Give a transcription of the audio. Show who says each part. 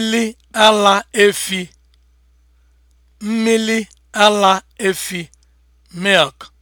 Speaker 1: mmili ala efi ala efi
Speaker 2: milk